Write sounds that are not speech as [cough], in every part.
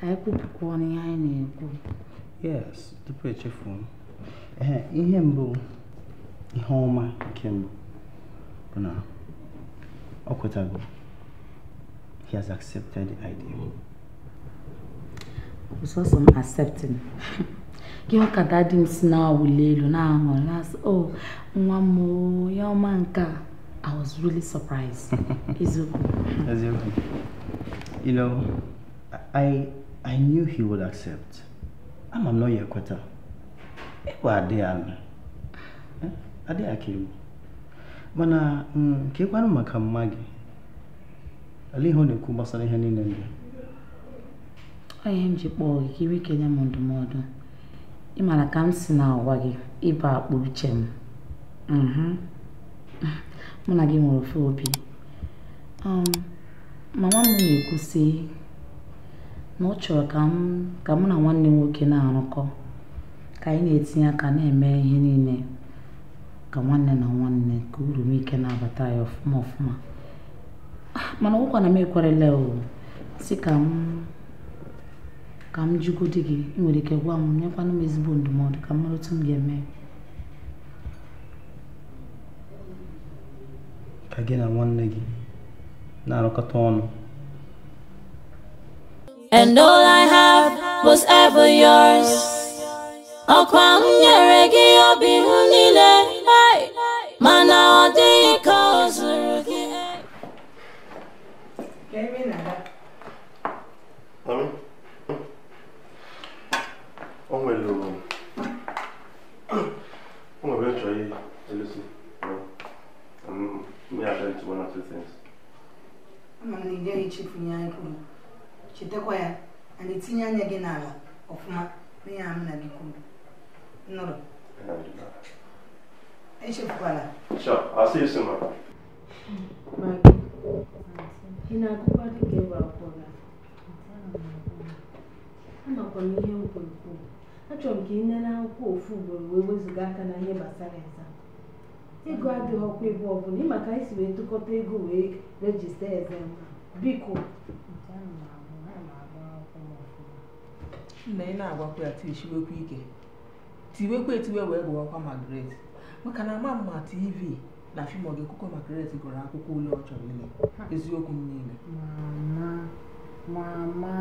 ka anyị e kwupụkwa ọnụ ihe anyị na-ekwu yes tupu echefu ee ihe mbụ ihe ọma nke mbụ bụ na ọ kwetago he has accepted the idea sọsọ m accepting gị ka dadi m si na-awụli elu na-aṅụ na o oh, nwa m ya ọma nke a I was really surprised. [laughs] Eziokwu. Eziokwu. You know, I I knew he would accept. Ama m na ya ekweta. Ịkwa adị ya nụ. Mana mm, ka ịkwanụ maka mma gị. Olee ihe ọ na-ekwu gbasara ihe niile ndị? Ọ ihe m ji kpọọ gị ka iri kenye m ndụmọdụ. Ị maara ka m si n'ụwa gị ịba akpụ uche m. Mhm. Mụ na gị nwere um, Mama m na-ekwu sị na ọ chọrọ ka m ka mụ na nwanne m nwoke na-arụkọ ka anyị na-etinye aka na-eme ihe niile ka nwanne na nwanne ka uru m ike na-abata ya ọfụma ọfụma ah, mana ọgwụkwa na m ekwerela o si ka m ka m jụgodi gị ị nwere ike gwa m nyekwana m ezigbo ndụmọdụ ka m mara otu m ga-eme ka gị na nwanne gị na-arụkọta ọnụ And all I have was ever yours Ọkwa m nyere obi m niile mana ọ dịghị ka ọ zụrụ gị O nwere o nwere chọọ ihe elusi me I tell you one or two things. I'm gonna need any chip chetakwa ya ana etinye anya gị n'ala ọfụma n'ihe a m na gị kwuru nụrụ echefukwala ị na amakwa m ihe m kwuru kwuru achọrọ m ka ị nene akwụkwọ ofu ugboro wee wezụga aka na ihe gbasara eza ego adịghị ọkwa ebe ọbụla maka anyị si wee tụkọta ego wee rejista eze biko nna ị na-agwakwa ya tichiwekwa ike tiwekwa etiwe wee gụwakwa Margaret maka na ama mma tv na fim Ogekukwe Margaret gụrụ akwụkwọ ule ọ chọrọ ile eziokwu m niile mama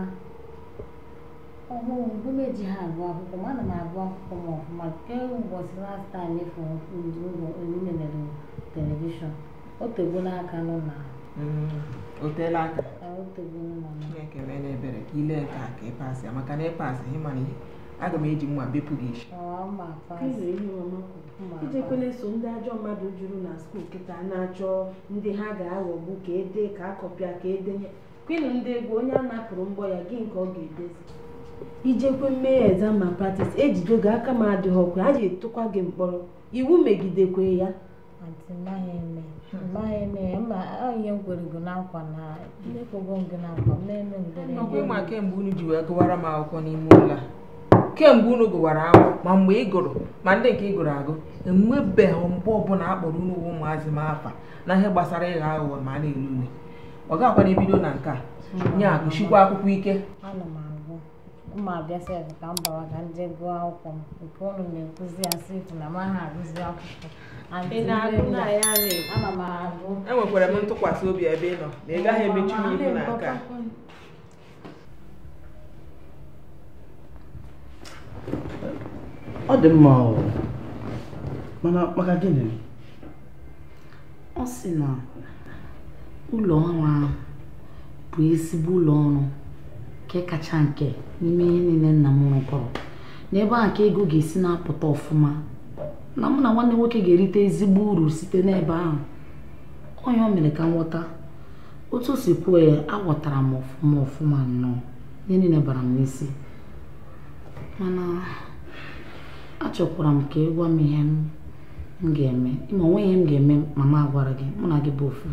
ọhụụ mgbe m eji ha agụ akwụkwọ ma ana m agụ akwụkwọ m ọfụma kee ụbọchị last time e fụrụ ụlọ e televishọn. o tego n'aka nọ na mm, o aka na-ekele na ebere ka ile ka ka ị pasị ya maka na ị pasị ị mana aga m eji mma bepụ gị isi ijekwele so ndị ajọ mmadụ juru na skuul kịta na-achọ ndị ha ga-aghọgbu ka ede ka akọpịa ka edenye kwinu ndị egwu onye a napụrụ mgbọ ya gị nke ọ ga-edezi ijekwe mee exam ma practice ejido gị aka m adịghị ọkwa a ga-etokwa gị mkpọrọ iwu megidekwe ya nọkwa ịma kemgbe unu ji wee gụwara m akwụkwọ n'ime ụlọ a kemgbe unu gụwara akwụkwọ ma mgbe ị gụrụ ma ndị nke ị gụrụ agụ enwebeghị mgbe ọbụla a kpọrọ unu ụmụazị m afa na ihe gbasara ịghọ aghụghọ ma a na-ele ule ọ gakwana ebido na nke a nye agụchikwa akwụkwọ ike mma abịa sef ka m bawa ka m jee gụọ akwụkwọ m nke ụnụ na-ekwuzi ya sef na m aha agụzi akwụkwọ ana m agụ enwekwara m ntụkwasị obi ebe ị nọ na ị gaghị emechi m ihu na ọ dị mma mana maka gịnị ọ sị na ụlọ ọrụ ahụ bụ ezigbo ụlọ ọrụ nke kacha nke n'ime ihe niile nna m rụkọrọ n'ebe a ka ego ga-esi na-apụta ọfụma na mụ na nwanne nwoke ga-erite ezigbo uru site n'ebe ahụ onye o mere ka m ghọta otu o si kwuo ya aghọtara m ọfụma ọfụma nnọọ ihe niile bara m n'isi mana achọkwara m ka ịgwa m ihe m ga-eme ma onwe ihe m ga-eme mama agwara gị mụ na gị bụ ofu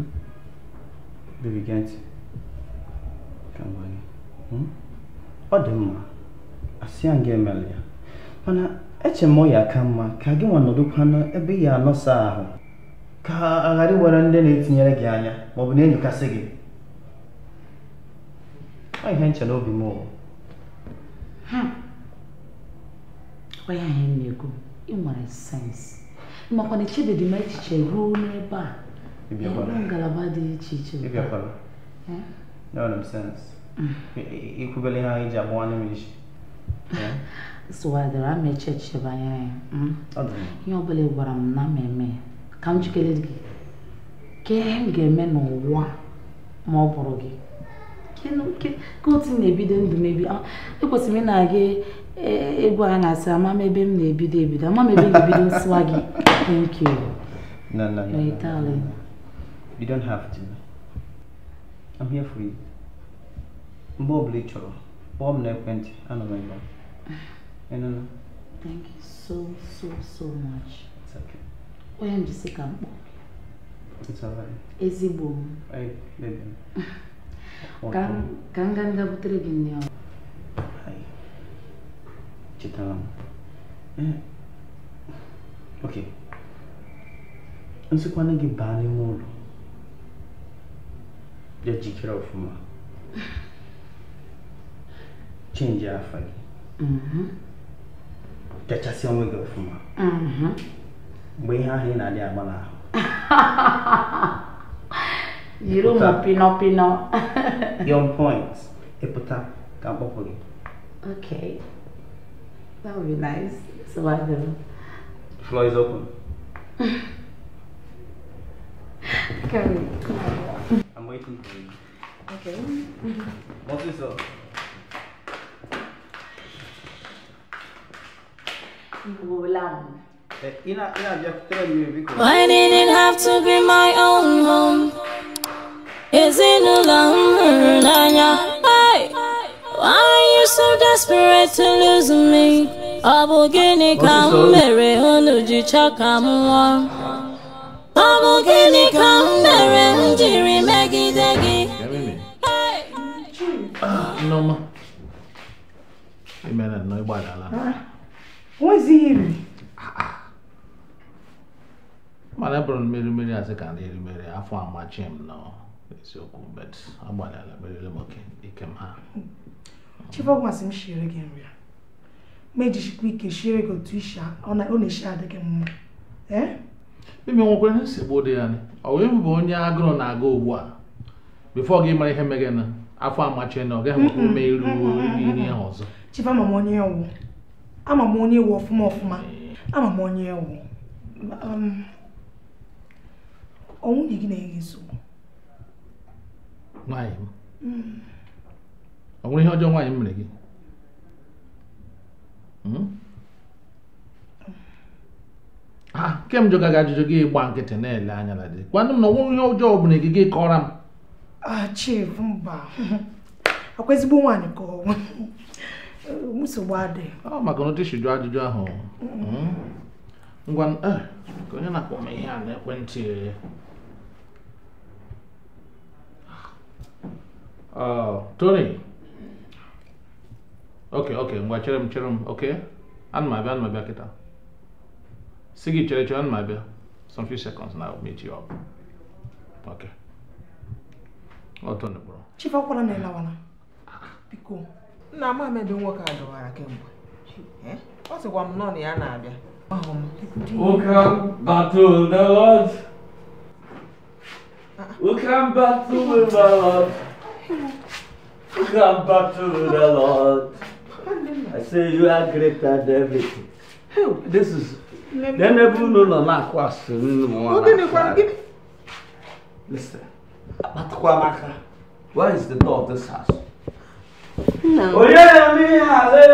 ọ dị mma asị ya nga emela ya mana eche m ya aka mma ka gị nwa nọdụkwana ebe ị anọsa ahụ ka a ghara iwere ndị na-etinyere gị anya ma ọ bụ na-enyokasị gị ọ ihe nche n'obi m ụwa onye ahụ m na-ekwu ị nwere sensị makwana echebedị m echiche ruo n'ebe a ngalaba dị iche iche ikwubele ha anyị ji agbawa ama ihe ọbụla gwara m na m ka m jikere gị m ga-eme n'ụwa ma ọ bụrụ gị ka otu na-ebido ndụ mebi ah, ekwesịrị na-aga e, e, egwu a na-asị ama m ebe m na-ebido ebido ama m ebe m na-ebido gị thank you no, no, no, no, no, no. you have to I'm here for you Bob Lichoro. Bob Nepent, and my God. And Thank you so, so, so much. It's okay. Why am I sick? It's alright. Ezigbo m. [laughs] Ka ka m gaa nga butere gị nne ọrụ. Chetara m. Eh. Ok. Nsikwana gị o n'ime ụlọ. Ya jikere ọfụma. change mm-hmm. mm-hmm. [laughs] [laughs] your yafanye Mm-hmm. gị ọfụma mgbe ihe ahụ ị na-adị agba n'ahụ jiri ụmụ pinọpinọ yon points. ịpụta ka mkpọpụ gị okay that would be nice so I do floor is open Okay. [laughs] I'm waiting for you. Okay. What is up? Eh, why did it have to be my own home? Is it alone? Why? Why are you so desperate to lose me? Ọ Mary gịnị ka m mere unu ji chọ ka m nwụọ? Ọ bụ gịnị ka m mere m jiri megide gị? Nneọma, ị mere nnọọ ịgbalala. nwezighị iri mana bụrụ mmerimeri asị ka ndị erimeri afọ amachi m nọ eziokwu bet agbalịla merere m ike m ha chibọgwasị m shiri gị nri a ma ejichikwa ike shiri gị otu isi ọ na-eshi adị gị mma e? ime nwekwara nsogbu dị ya ọ wee bụ onye agụrụ na-aga ugbu a bifo gị mara ihe na afọ amachi na ọ gaghị enwe ume iru ihe ahụ ọzọ chibama m onye ọwụ ama m onye ewu ọfụma ọfụma ama m onye ewu um, ọnwụ dị gị na-enye nsogbu m hmm. ọ nwere ihe ọjọọ nwaanyị m mere gị hmm? ha kemgbe gaga ajụjụ gị gba nkịtị na-ele anya na dị kwanụ m na ọnwụrụ ihe ọjọọ ọ bụla gị kọrọ m achif ah, mba akwa [laughs] ezigbo nwaanyị ka ọnwụ nsogbu adị ọ maka na otisidu ajụjụ ahụ ngwa ka onye na-akpọ m ihe a na ekwentị Tony ok ok ngwa chere m chere m ok ana m abịa ana m abịa kịta si gị chere chere ana m abịa some few seconds na meet you up ok ọtọ oh, nụgbụrụ chief ọkwara na ịlawala biko nna m amebe nwoke a gawara kemgbe ọ sịkwa m nọ na ya na-abịa Welcome back to the Lord. Ah, ah. Welcome back to the Lord. Welcome back to the Lord. I say you are greater than everything. This is. Then everyone no na-akụ asị nnu Listen. Akpatakwa maka. Where is the door of this house?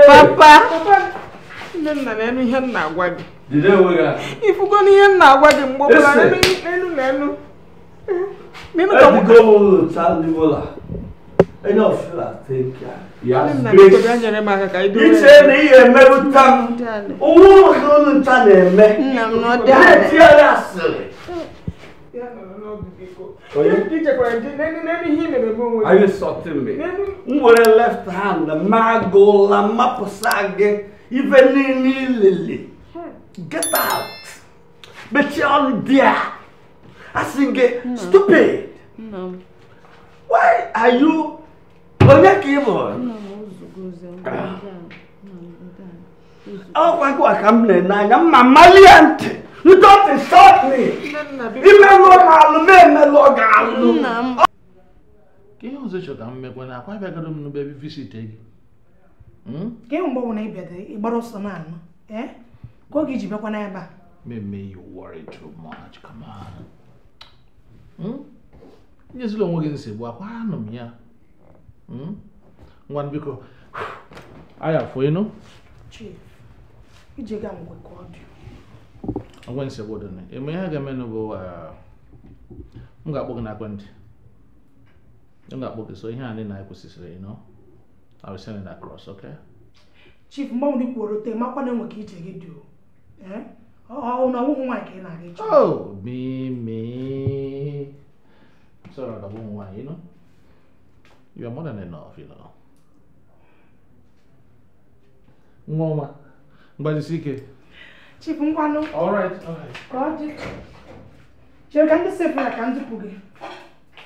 papa nne nna na enu ihe m na-agwa gị ifugo na ihe m na-agwa gị mgbe ọbụla n'elu na elu Mimi kama go tali bola. Enyo fila take care. Ya grace. Ya nyere maka ka ido. ni ihe mebuta. Owo no no ta na eme. Nna Ti ala sele. Are you insulting me? M were left hand, magola, mapusage, even lily. Hmm. Get out. But you're on there. I sing no. Hmm. stupid. No. Why are you on that keyboard? No, ah. Oh, I can't. I'm not. I'm not i am You don't insult me! Ime lụọ alụ ma emelụọ gị alụ! Ka ihe ọzọ chọta mmekwa na akwa bịagoro visite n'ebe gị. Hmm? Ka ihe mgbe na ị ịgbara ọsọ na-anụ, eh? Ka oge iji bịakwa n'ebe a. you worry too much, come on. Nyezila hmm? onwe gị [sighs] ngwe nsogbu dị na eme ihe ga-emenụ bụ m ga-akpọ gị na ekwentị m ga-akpọ gị so ihe a ndị na-ekwesịsịrị ịnọ I will send you that cross, okay? Chief, mgbe ndị kwuoro te makwa na enwe ka ije gị dị ọ na ọwụghị nwaanyị ka ị na-aga ịchọ o mimi sọrọ ka ọwụghị nwaanyị you know you are more than enough nwa ọma mgbajisi ike Chief Nkwano. All right, all right. Ka ọ dị. Chere ka ndị sefụrụ ka m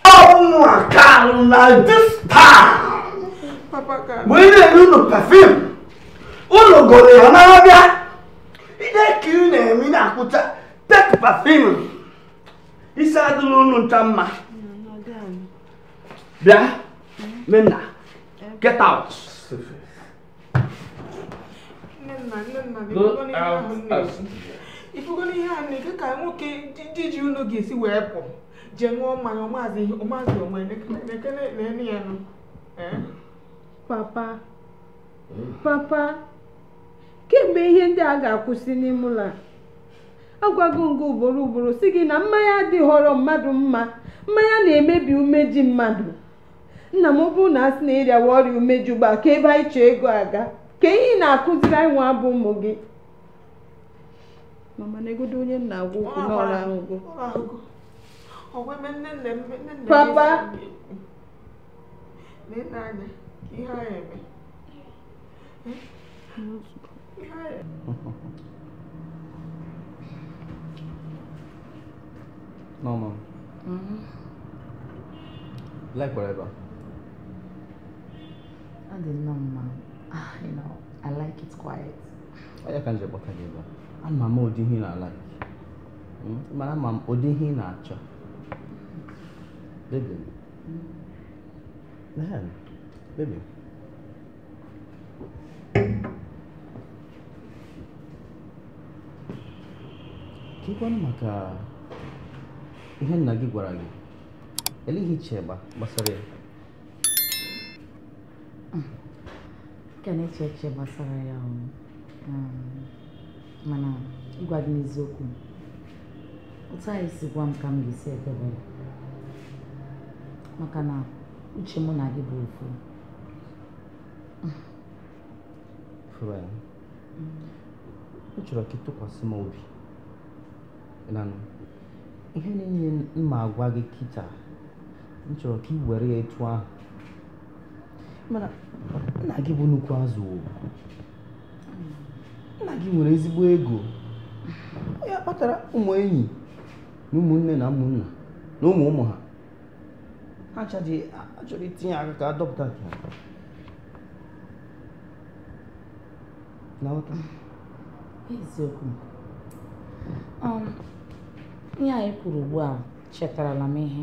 Oh my God, na this time. Papa ka. Mgbe ị na-ere ụlọ pafim, ụlọ goro ya n'abịa. Ide ka ị na-eme na-akwụcha tek pafim. Isi adịla ụlọ no, mma. Bịa, Minna, get out. nna nne nna ịfụgona ihe a nne ka nwoke ndị ji unu ga-esi wee pụ jee ṅụọ mmanya ọmazị ọmazị onwe na-ene ya nụ papa papa kemgbe ihe ndị a ga-akwụsị n'ime ụlọ agwago gị ugboro ugboro si gị na mmanya dị họrọ mmadụ mma mmanya na-emebi umeji mmadụ nna m ọ bụrụ na a sị na ịrịawa ọrịa ugbu a, ka ebe anyị chọọ ego aga ka ihe na-akụziri anyị nwa bụ ụmụ gị mama na-egodo onye na-agwa okwu n'ọrụ ahụgo papa Mm-hmm. Like whatever. I did not, Ah, you know, I like it quiet. Onye ka njikwa ka gị ama m ụdị ihe na-alaki hmm? mana ama m ụdị ihe na-achọ baby man hmm. baby ka ịkwanụ maka ihe nna gị gwara gị eleghị Kenya kyekyo masara ya um, mana ịgwa gị n'eziokwu otu anyị si gwa m ka m ga-esi edebe maka na uche mụ na gị bụ ofu m chọrọ ka ị m obi ihe niile mma agwa gị kịta m chọrọ ka ị were ya etu ahụ nna gị bụ nnukwu azụ nna gị nwere ezigbo ego ya kpatara ụmụ enyi na ụmụnne na ụmụnna na ụmụ ụmụ ha ha achọrọ itinye aka ka adọpụta nke ha eziokwu ihe anyị kwuru ugbu a chetarala m ihe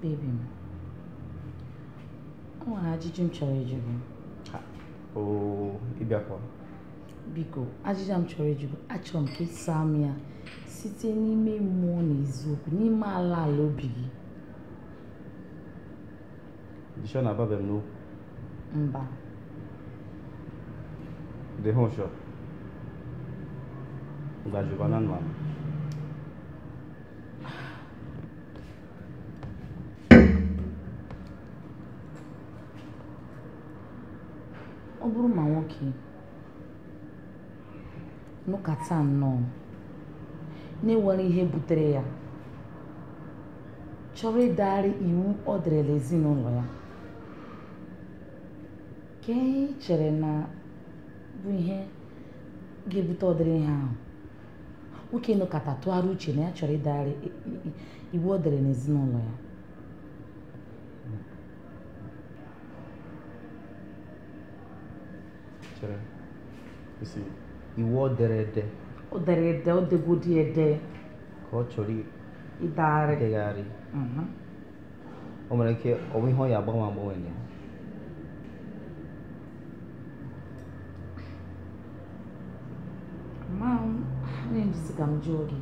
bebi m o nwere ajụjụ m chọrọ ịjụ gị ịbịakwa biko ajụjụ m chọrọ ịjụ achọrọ m ka saa m ya site n'ime mmụọ na eziokwu n'ime ala ala obi gị Dishọ na ababe m n'okwu mba dị ha ụshọ ngajụba na bụrụ ma nwoke nụkata nnọọ na-enwere ihe butere ya chọrọ ịdagharị iwu ọ dịrịla ezinụlọ ya ka ihe chere na bụ ihe ga-ebute ọdịrị ihe ahụ nwoke nụkata tụgharị uche na ya chọrọ ịdagharị iwu ọ dịrị n'ezinụlọ ya chere isi iwu o dere ede o dere ede o degodi ede ka ọ chọrọ idegharị idegharị o nwere ike ọ ihe ọ ya agbanwe agbanwe na ya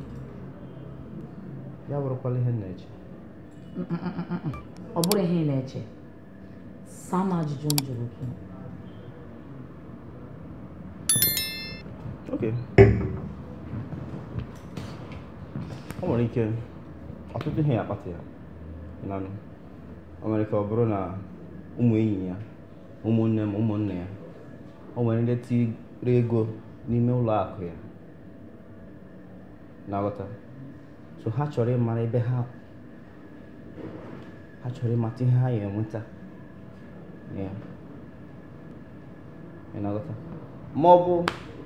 ya bụrụkwala ihe na-eche ọ bụrụ ihe ị na-eche sama m ajụjụ m jụrụ gị oke o nwere ike ọtụtụ ihe ya akpata ya nanụ ọ nwere ka ọ bụrụ na ụmụ enyi ya ụmụ nne ya ọ nwere ndị tiri ego n'ime ụlọ akụ ya na-aghọta so ha chọrọ ịmara ebe ha ha chọrọ ịmata ihe ha ya enweta ya na-aghọta ma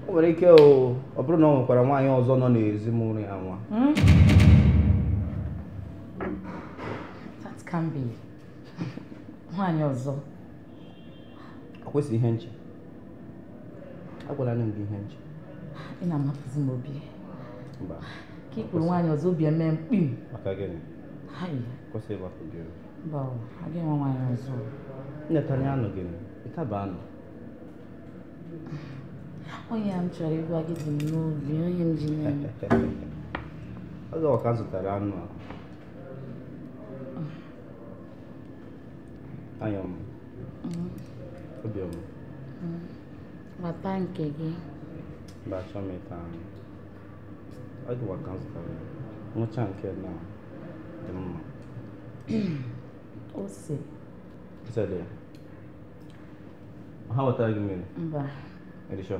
o nwere ike ọ bụrụ na ọ nwekwara nwaanyị ọzọ nọ n'ezi mụrụ ya nwa hmm? nwaanyị ọzọ akwesị ihe nche agwala nne gị ihe nche ị na-amapụzi m obi ka ikpuru nwaanyị ọzọ obi eme mkpim maka gịnị kwesị ịgbapụ gị mba agaghị enwe nwaanyị ọzọ nnetanya anụ gịnị ịtaba onye m chọrọ ịgwa gị dị m n'obi onye m ji n'elu oge ọka zụtara anụ a anyọm obiọm bata nke gị mba achọ m ịta anụ oge ọka zụtara nwụcha nke na dị mma ose ose dị ya ha wetara gị mmiri mba Are you sure?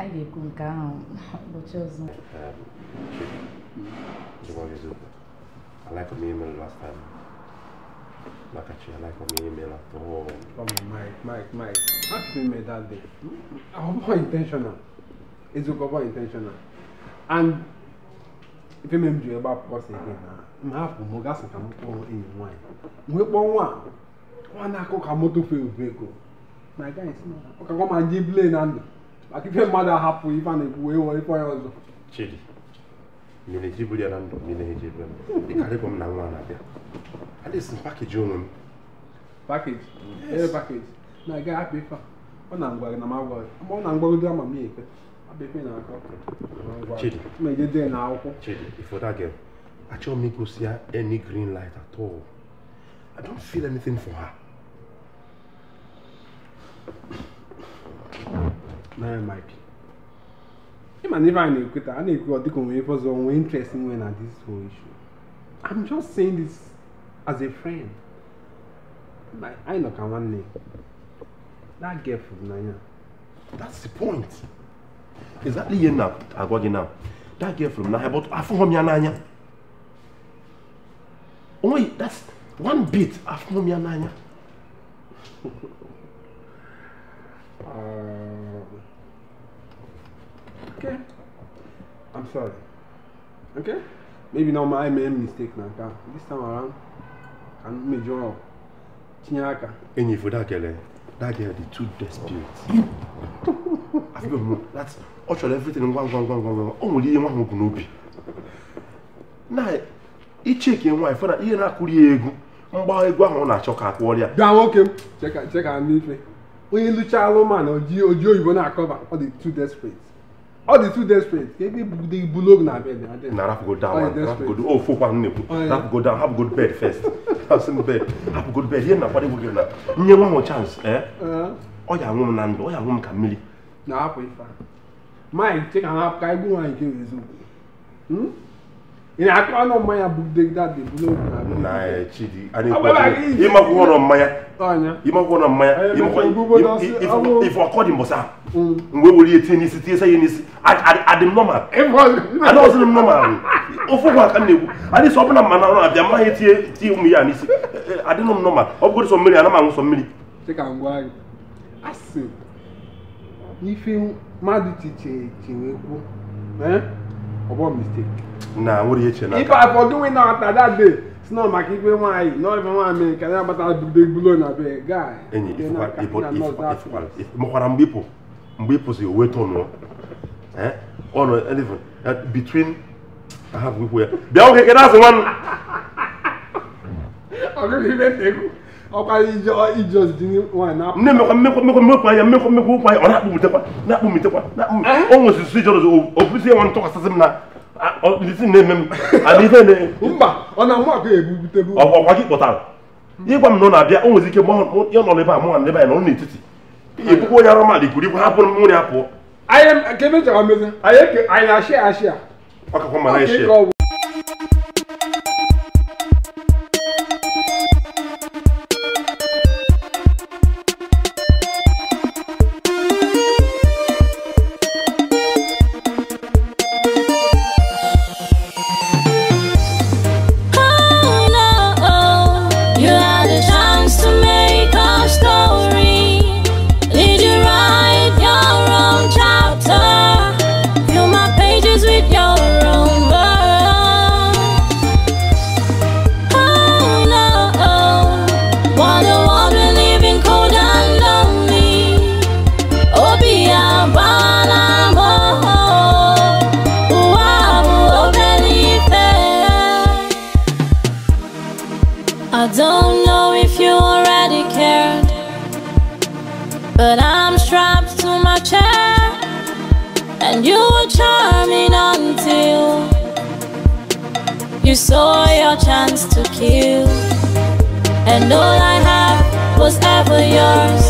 anyị ga-ekwu nke ahụ ụbọchị ọzọ like my email last time. Like I like my email after all. Oh my, Mike, Mike, Mike. How can you make that day? I was intentional. It's more intentional. And if you remember me about pause again, I'm half more gas and I'm all in wine. We want one. One I cook a motor field vehicle. My guy is not. Okay, come and give lane and. maka ife mmadụ ahapụ ife a na-ekwu wee ya ọzọ chidi mmiri jiburu ya na ndụ m na-eji ebe m m na nwa na-abịa adịsị m pakeji onwe m pakeji ee pakeji na-aga hapụ ife ọ na ngwa na m ma ọ na dị ama m ekwe abịa na-akọ chidi na akwụkwọ chidi ifoda gị m igosi ya any green light at all I don't feel anything naira mike him and Ivan Equator, I think God can wait for some interest in when at this whole issue. I'm just saying this as a friend. Like, I know can one name. That girl from Nanya. That's the point. Exactly here now, I got now. That girl from Nanya, but I found Nanya. Only that's one bit I found Nanya. [laughs] uh... okay i'm sorry okay maybe na my eme mistake na this time around ka mmejọ tinye aka enyifu dakele eh? that girl the two desperate afọ bụ that ọ chọrọ everything ngwa ngwa ngwa ngwa ngwa nwere ihe nwa ahụ bụ n'obi na icheke na ihe na egwu mgba egwu ahụ na-achọ ka akwụ ọrịa. gaa nwoke m cheka n'ife onye oyibo na-akọba ọ dị desperate ọ dị two days straight ka ebe ibugide ibulu oge na bed na rapụgodo rapụgodo o fokwa nnekwu rapụgodo hapụgodo bed first hapụsin [laughs] bed hapụgodo bed ihe na-akwado gị na nye nwa chance ee ọ ya anwụ m na ndụ ọ ya anwụ m ka mmiri na-apụ ife maịk cheka ha ka egwu nwaanyị nke na-akọ eh, ọnụ mmanya bụ a bụrụ ịmakwụkwọ bụla ma ịmakwụkwọ ọnụ mmanya ife ọkọ mm. mgbe were ya tinye n'isi tinye n'isi adị m nọmal m nọmal na-ekwu adị sọ ọbụla mma ọrụ abịa mma ya tinye tinye ụmụ ya n'isi e, e, adịnụ m nọmal ọ bụrụ sọ mmiri ana m anwụ sọ mmiri n'ife mmadụ chiche ọbọ mistake. na nwere ihe chere n'aka ife afọ gịnwe na ata that day maka ikpe nwanyị na ife nwaanyị mere ka ya gbata bulo na be guy enyi makwara mgbe ịpụ mgbe ịpụzi owe tọnụọ ọnụ between ahapụ ikwu ya bịa oge kedazụ nwanne ọgụgụ ibe mmekwa anya mmekwa mmekwa na-akpụbitekwa na-akpụbitekwa o nwesịrị ijọrọz o bụzi enwe ntụkwasịsị na isi na-eme ịgwa m na ọ na-abịa o ike mgbe ọ nọ a mụ na ebe anyị nọ n'etiti ebukwa onye arụ mmadụ ikwuru nri ọkakwa na and all I have was ever yours.